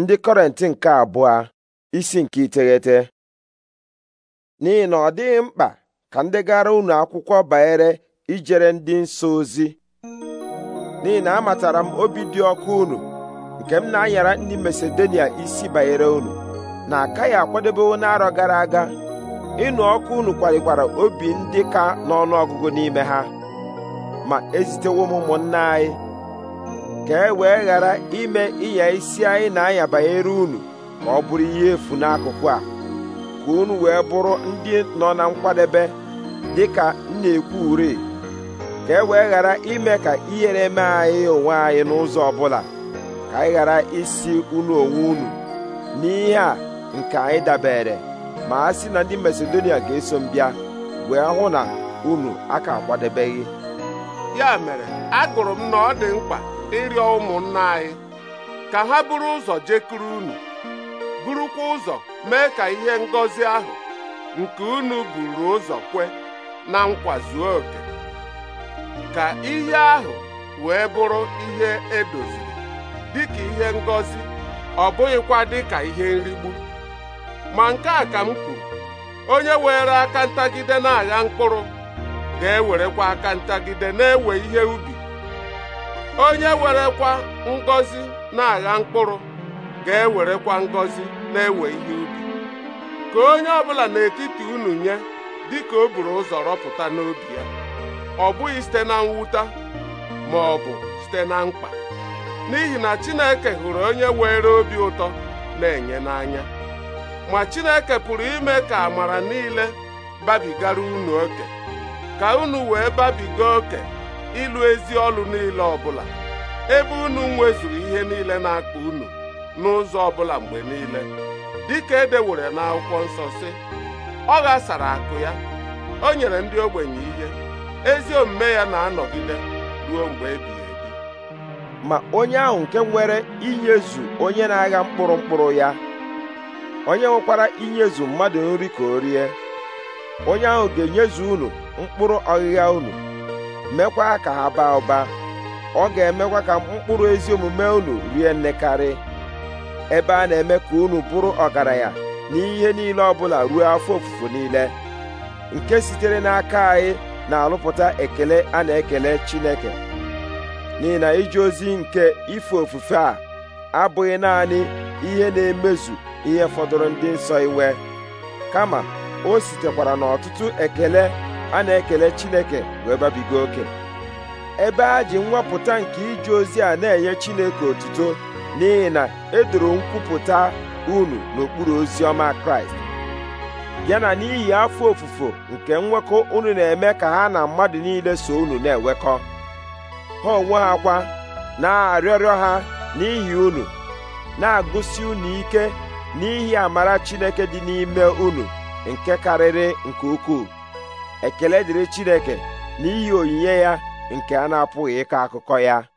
ndị kọrent nke abụọ isi nke iteghete n'ihi na ọ dịghị mkpa ka ndị gara unu akwụkwọ banyere ijere ndị nsọ ozi n'ihi na amatara m obi dị ọkụ unu nke m na-anyara ndị Masedonia isi banyere unu na akaghị akwadebewo n'arọ gara aga ịnụ ọkụ unu kwalikwara obi ndị ka ọgụgụ n'ime ha ma ezitewo m ụmụnna anyị ka e wee ghara ime ịnya isi anyị na-anya banyere unu ka ọ bụrụ ihe efu n'akụkụ a ka unu wee bụrụ ndị nọ na nkwadebe dị ka na-ekwu ure ka e wee ghara ime ka ihere mee anyị onwe anyị n'ụzọ ọbụla ka anyị ghara isi unu onwe unu n'ihe a nke anyị dabere ma a sị na ndị Masedonia ga-eso m bịa wee hụ na unu aka akwadebeghị ya mere agụrụ m na ọ dị mkpa ịrịọ ụmụnna anyị ka ha bụrụ ụzọ jekuru unu burukwa ụzọ mee ka ihe ngọzi ahụ nke unu buru ụzọ kwe na nkwa zuo oke ka ihe ahụ wee bụrụ ihe edoziri dịka ihe ngọzi ọ bụghịkwa dị ka ihe nrigbu ma nke a ka m kwuru onye were aka ntagide na-agha mkpụrụ ga-ewerekwa aka ntagide na-ewe ihe ubi onye werekwa ngọzi na-agha mkpụrụ ga-ewerekwa ngọzi na-ewe ihe ubi ka onye ọbụla n'etiti unu nye dịka o buru ụzọ rọpụta n'obi ya ọ bụghị site na mwụta ma ọ bụ site na mkpa n'ihi na Chineke hụrụ onye were obi ụtọ na-enye n'anya ma Chineke pụrụ ime ka amara niile babigara unu oke ka unu wee babiga oke ịlụ ezi ọlụ niile ọbụla ebe unu nwezuru ihe niile na-akpa unu n'ụzọ ọbụla mgbe niile dịka edewere n'akwụkwọ nsọ si ọ ghasara akụ ya o nyere ndị ogbenye ihe ezi omume ya na-anọgide ruo mgbe ebighị ebi ma onye ahụ nke nwere inyezu onye na-agha mkpụrụ mkpụrụ ya onye nwekwara inyezu mmadụ nri ka o rie onye ahụ ga-enyezu unu mkpụrụ ọghịgha unu mekwa ka ha baa ụba ọ ga-emekwa ka mkpụrụ ezi omume unu rie nnekarị ebe a na-eme ka unu bụrụ ọgaranya ihe niile ọbụla ruo afọ ofufo niile nke sitere n'aka anyị na-alụpụta ekele a na-ekele Chineke n'ihi na ije ozi nke ife ofufe a abụghị naanị ihe na-emezu ihe fọdụrụ ndị nsọ iwe kama o sitekwara n'ọtụtụ ekele a na-ekele Chineke wee babiga oke ebe a ji nwapụta nke ije ozi a na-enye Chineke otuto n'ihi na edoro nkwupụta unu n'okpuru ozi ọma Kraịst ya na n'ihi afọ ofufo nke nwekọ unu na-eme ka ha na mmadụ niile so unu na-enwekọ ha onwe ha kwa na-arịọrịọ ha n'ihi unu na-agụsi unu ike n'ihi amara Chineke dị n'ime unu nke karịrị nke ukwuu ekele dịrị Chineke n'ihi onyinye ya nke a na-apụghị ịkọ akụkọ ya